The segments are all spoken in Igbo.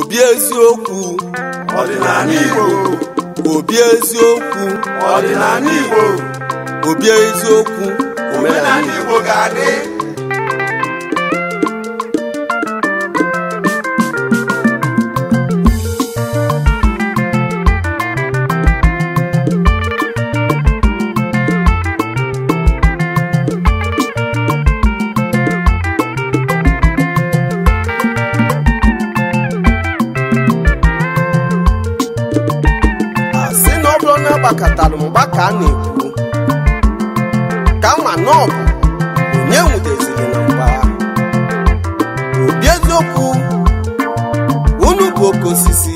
obi eziokwu ọdịnala Igbo obi eziokwu ọdịnala Igbo obi eziokwu omenala Igbo ga-adị katalụmgbaka na-ekwu ka ma na ọ bụ onye nwudeziri na mgba obi eziokwu unu bụ oke osisi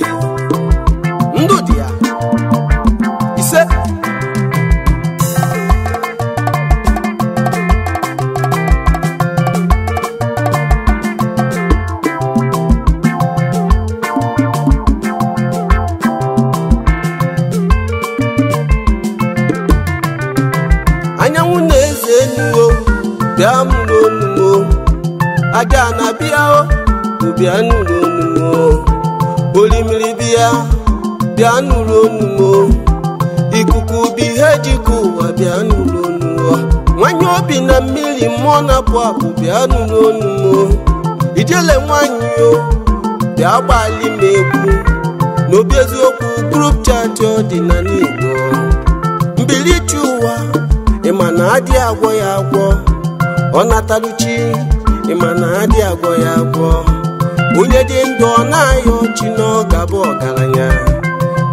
bịa nụrụ onu olimiri bịa bịa nụrụ onu ikuku bụ ihe jikọ ụwa bịa nụrụ onu nwanyị obi na mmiri mmụọ na-apụ apụ bịa nụrụ onu ijele nwanyị o bịa gbali m egwu n'obi eziokwu group chat dị na Igbo mbilichi ụwa ịma na adị agwọ ya agwọ ọ nataluchi ịma na adị agwọ ya agwọ onye dị ndụ ọ na-ayọ ọchị n'oge abụ ọgaranya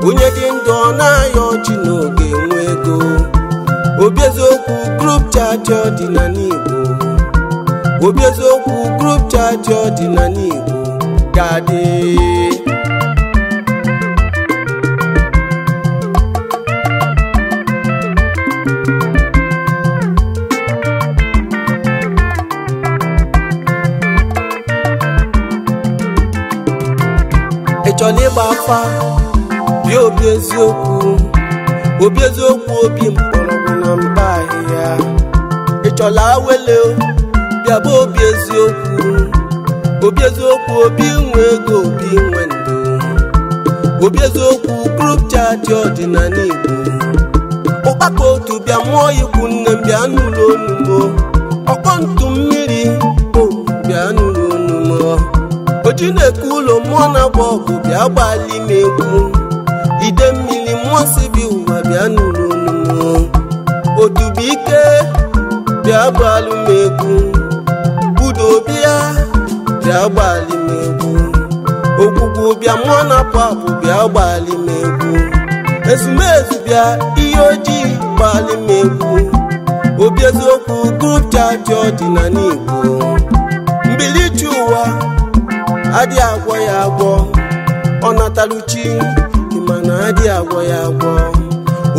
onye dị ndụ ọ na-ayọ ọchị n'oge nwa ego obi eziokwu grup chaji ọdịnala igbo obi eziokwu grup chaji ọdịnala igbo ga-adị chọrọ ịgba afa bịa obi eziokwu obi eziokwu obi mkpọrọgwụ na mba ahịhịa ịchọla awele bịa bụ obi eziokwu obi eziokwu obi nwe ego obi nwe ndụ obi eziokwu group ọdịnala igbo ụkpaka otu bịa mụọ ikwu nne m bịa nụrụ onugbo ọkpọ ntụ mmiri bịa nụrụ onugbo oji na-eke ụlọ mmụọ na-agba ọgụ bịa gbalị na-egwu ide mmiri mmụọ si bi ụwa bịa n'ụlọnụmụ odubuike bịa gbalị m egwu Budo bịa gbalị m egwu ogwugwu bịa mmụọ na-apụ apụ bịa gbalị m egwu ezumezu bịa ihe ojii gbalị m egwu obi eziokwu group chat ọdịnala Igbo mbilichi ụwa adị agwọ ya agwọ ọ nataluchi mana adị agwọ ya agwọ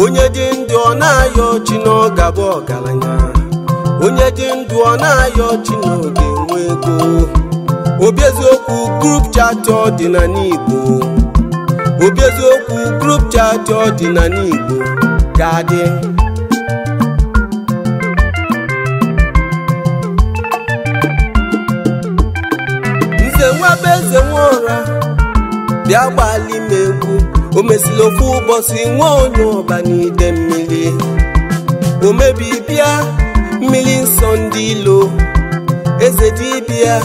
onye dị ndụ ọ na-ayọ ọchị na ọ ọgaranya onye dị ndụ ọ na-ayọ ọchị na ọ ga ego obi eziokwu grup chat ọdịnala Igbo obi eziokwu grup dị na Igbo ga-adị eze nwaba eze nwa ụra bịa gbali m egwu o mesiri ofu ụbọchị nwa onye ọba n'ide mmiri o bịa mmiri nsọ ndị ilo eze dibịa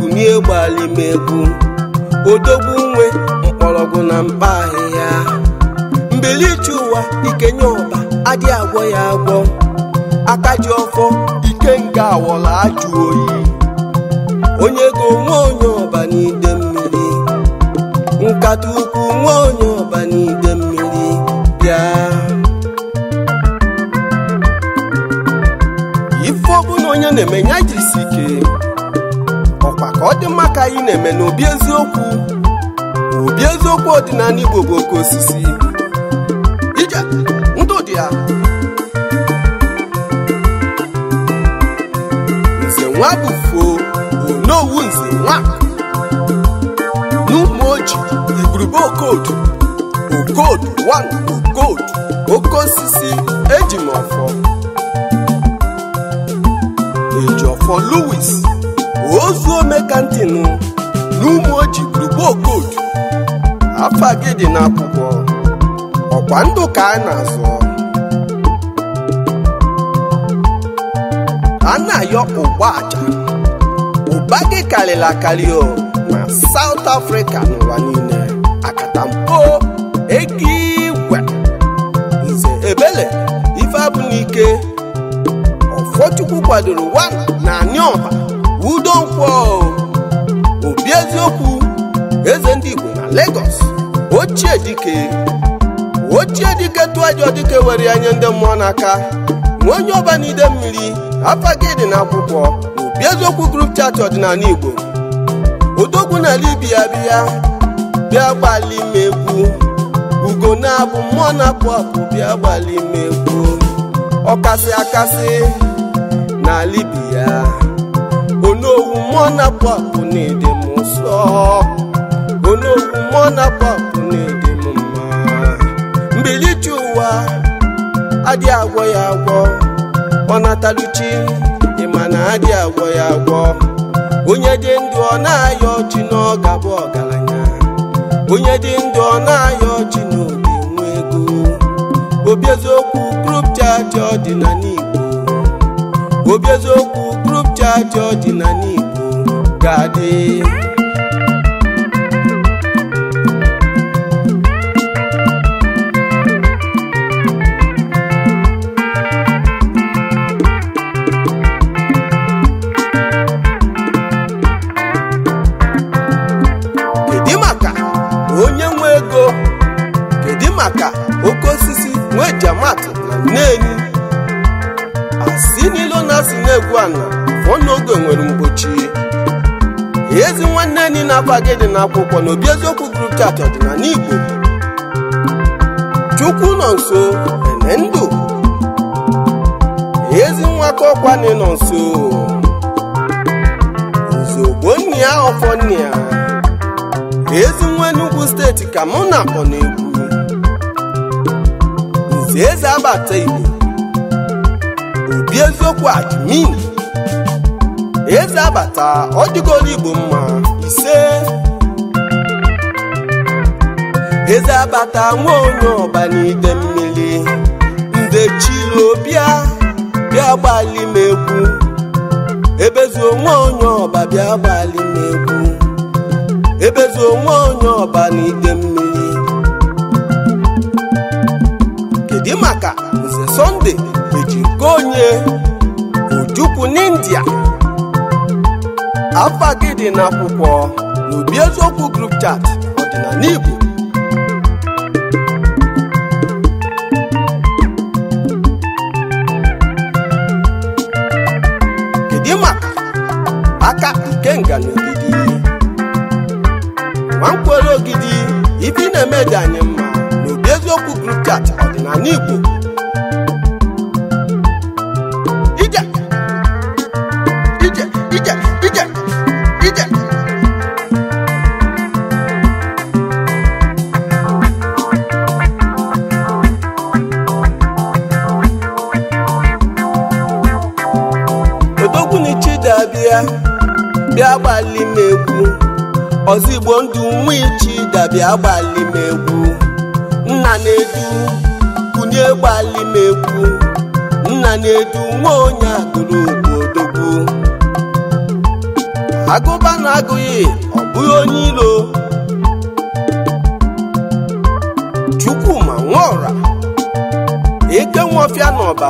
kunie gbali m egwu nwe mkpọrọgwụ na mkpa ahịhịa mbilichi ụwa ikenye ọba adịghị agwọ ya agwọ aka ji ọfọ ike nga awọla ajụ oyi onye ego nwa onye ọba n'ide mmiri nkata ukwu nwa onye ọba n'ide mmiri bịa ife ọbụla onye na-eme ya jirisi ike ọkwa ka ọ dị mma ka anyị na-eme n'obi eziokwu obi eziokwu ọdịnala Igbo bụ oke osisi ije ndụ dị ya nze nwa bụ foo unowu nze nwa n'ụmụoji igurube okodo okodo wan okodo oke osisi eji m ọfọ ejiọfọ Louis ozu omekantinu n'ụmụoji oji okodo afa gị na n'akwụkwọ ọkwa ndụ ka a na-azụ a na-ayọ ụgbọ aja mba gị karịrị akarị o na South afrịka n'ụwa niile akatampo ego igwe nze ebele ifeabụlike ọfọchukwu kwadoro wa na anịọha udo nkwọ obi eziokwu eze ndị Igbo na Lagos ochie dike ochie dike tụajọ dike were anya ndị mmụọ n'aka nwa onye ọbanide mmiri afa gị dị eziokwu grup chat ọdịnala igbo odogwu n'ala ibia bịa bịa gbalị m egwu ugo na-abụ mmụọ na bịa gbalị m ọkasị akasị n'ala ibia onowu mmụọ na-apụ apụ na ede m nsọ onowu mmụọ na-apụ m mbilichi ụwa adịghị agwọ ya agwọ ọ mana adị agwọ ya agwọ onye dị ndụ ọ na-ayọ ọchị na ọ ọgaranya onye dị ndụ ọ na-ayọ ọchị na obi nwa ego obi eziokwu group chat ọdịnala Igbo obi chaachị group chat ga-adị onye nwe ego kedu maka oke osisi nwee jamat na nneni asi n'ilo na asị na-egwu ana fọ nwere mgbochi ezi nwanne enyi na-akwa gị dị n'akwụkwọ na obi eziokwu group chat ọdịnala n'Igbo. chukwu nọ nso ene ndụ ezi nwaka ọkwa na ịnọ nso Ozugbo nne ọfọ ezi steeti ka mụ na akpọ na-ekwu nze eze abata Igbo obi eziokwu admin eze abata ọ dịgoro Igbo mma ise eze abata nwa onye ọba n'ide mmiri nde chilo bịa bịa gbalị m nwa onye ọba bịa gbalị ebezuo nwa onye ọba n'ide mmiri kedu maka nze sọnde eji nke onye ojukwu n'india afa gị dị n'akwụkwọ n'obi eziokwu group chat ọdịnala igbo na-eme dị anyị mma n'obi eziokwu kripchat ọdịnala Igbo ozigbo ndụ nwichi dabịa gbalimegwu nna na-edu kunye gbalimegwu nna na-edu nwa onye agụrụ odogwu agụba na-agụghị ọ bụghị onye ilo chukwuma nwaọra eke nwofia n'ọba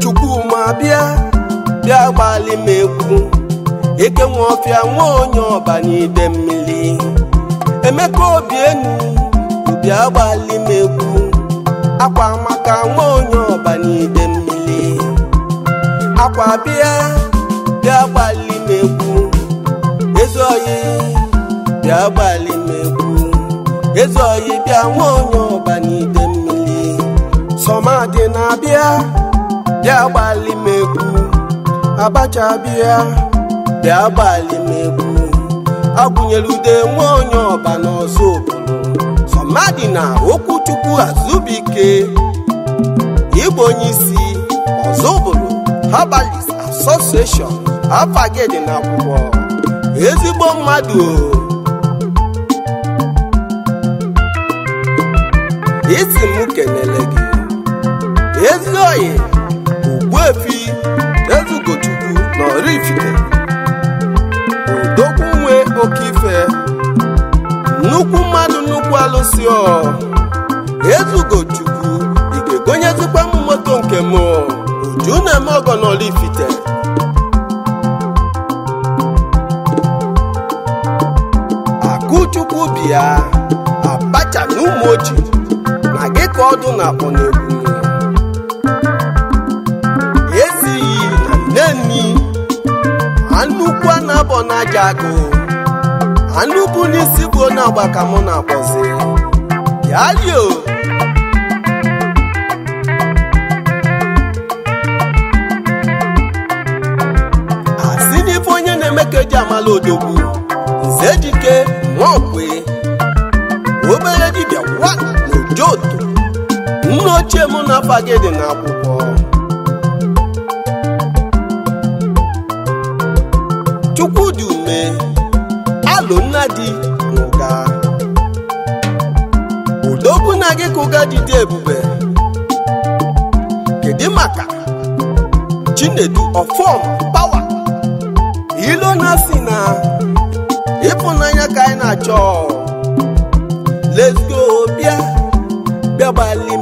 chukwuma bịa bịa gbalimegwu eke ọfịa nwa onye ọba n'ide mmiri emeka obi enu bịa gbali m egwu akwa maka nwa onye ọba n'ide mmiri akwa bịa bịa gbali m egwu ezi oyi bịa gbali m egwu ezi oyi bịa nwa onye ọba n'ide mmiri sọmadị na-abịa bịa gbali m egwu abacha bịa bịa gbalị m agwụnyere ude nwa onye ọba n'ọzọ obodo sọmadị na okwuchukwu azubike ịbụ onye isi ọzọ obodo herbalist association dị na akwụkwọ ezigbo mmadụ isi m kenele gị ezi oyi ogbuefi ezugochukwu na Oraifite bụ ife nnukwu mmadụ nnukwu alụsi ọ ezugo chukwu ị egonyezikwa m moto nke m uju na-eme ọgọ n'Ọlifite akụchukwu bịa abacha na ụmụ oji na gị ka ọdụ na akpọ n'egwu esighị na nne nni A na abọ na aja agụ anụ bụ n'isi bụ onye agba ka mụ na-akpọzi bịalio asị n'ife onye na-eme ka eji amala odogwu nze dike nwaokwe obere dibia wa na ojoto nna ochie mụ na afa gị dị n'akwụkwọ chukwu n'ụlọ nna dị n'ụga na gị ka ụga dị dị ebube kedu maka chinedu ọfọm pawa ilo na si na ịfụnanya ka anyị na-achọ lezgo go bịa bịa gbalị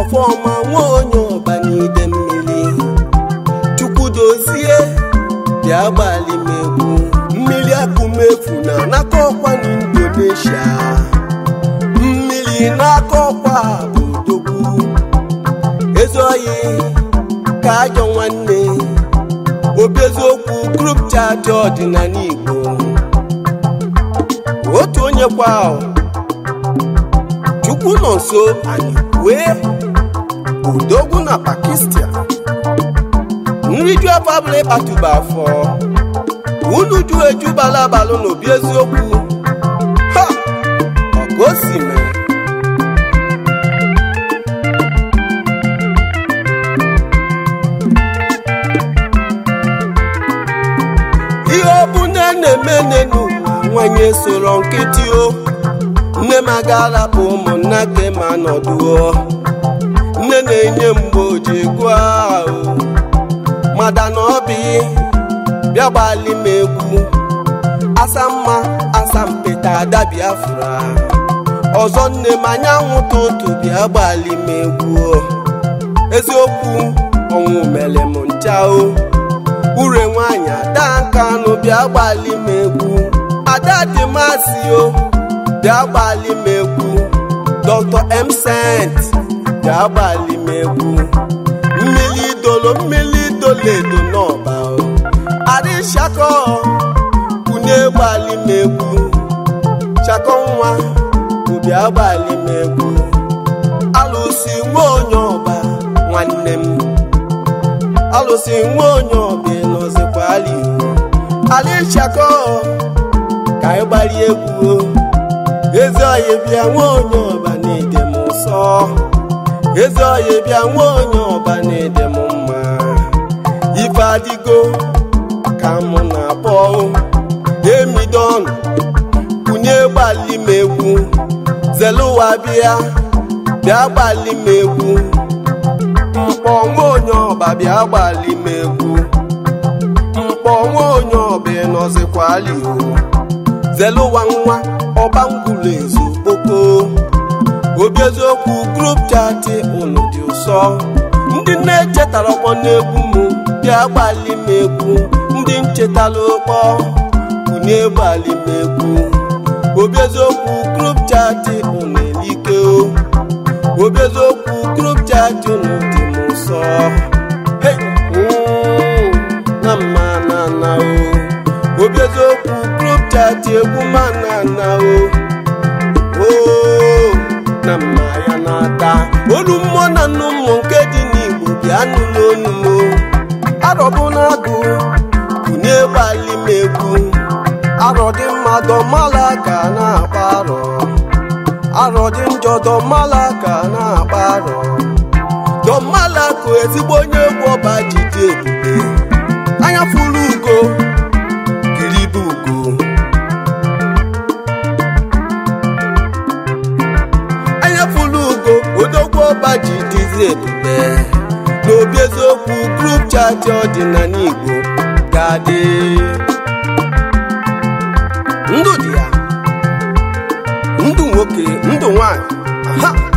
ọfọma nwa onye ọba n'ide mmiri chukwu dozie bịa gbalị mmiri akụmefu na n'aka ọkwa na Indonesia mmiri n'aka ọkwa bụ odogwu ezi ka ajọ nwanne obi eziokwu group chat ọdịnala Igbo otu onye kwa chukwu nọ nso anyị wee odogwu na Pakistan nriju afọ abụla ịkpatuba afọ unu ju eju balabalụ n'obi eziokwu ha agosi o si ihe bụ na-eme n'enu nwanyi soro nkịtị o nne m aga-arapụ ụmụnna ke ma nne na-enye mgbe oji egwu ahụ mada na bịa gbali m egwu asa mma asa mpeta ada biafra ọzọ nne m anyanwụ tụtụ bịa gbali m egwu eziokwu ọnwụ mere m ncha o ure nwaanyị ada nkanụ bịa gbali m egwu ada dị masị o bịa gbali m egwu dr msent bịa gbali m egwu mmiri idolo mmiri idolo edo n'ọba Chakọ kwunye gbali m egwu nwa ụbịa gbali m egwu alụsị nwa onye ọba nwanne m alụsị nwa onye ọba ịnọzikwa ali ali ka anyị gbali egwu ezi ọya bịa nwa onye ọba na-ede m nsọ ezi ọya bịa nwa onye ọba na-ede m mma ife adịgo ka m na-akpọ demidon kwunye gbali m egwu zelụwa bịa bịa gbali m egwu mkpọ nwa onye ọba bịa gbali m egwu mkpọ nwa onye ọba ịnọzikwali zeluwa nwa ọba ngwụlọ ezu kpoko obi eziokwu grup chati unu dị ụsọ ndị na-echetara ọkpọ egwu m bịa gbali m egwu ndị m chetala ụkpọ unu egbalimekwu obi eziokwu grup chati unu elike obi eziokwu grup chati unu dị m nsọ na mma na o obi eziokwu grup chati egwu mana na o na mma ya na-ata olu mmụọ na nnu mmụọ nke dị n'Igbo bịa nụ n'onu m arọbụ na agụ na-egbali m egwu arọ dị mma dọmala ka na-akpa arọ arọ dị njọ dọmala ka na-akpa arọ dọmala kụ ezigbo onye egwu ọba ji dị ebube anya furu ugo kiribe ugo anya furu ugo odogwu ọba ji dịzi ebube n'obi eziokwu group chat ọdịnala Igbo ga-adị ndụ dị ya ndụ nwoke ndụ nwanyị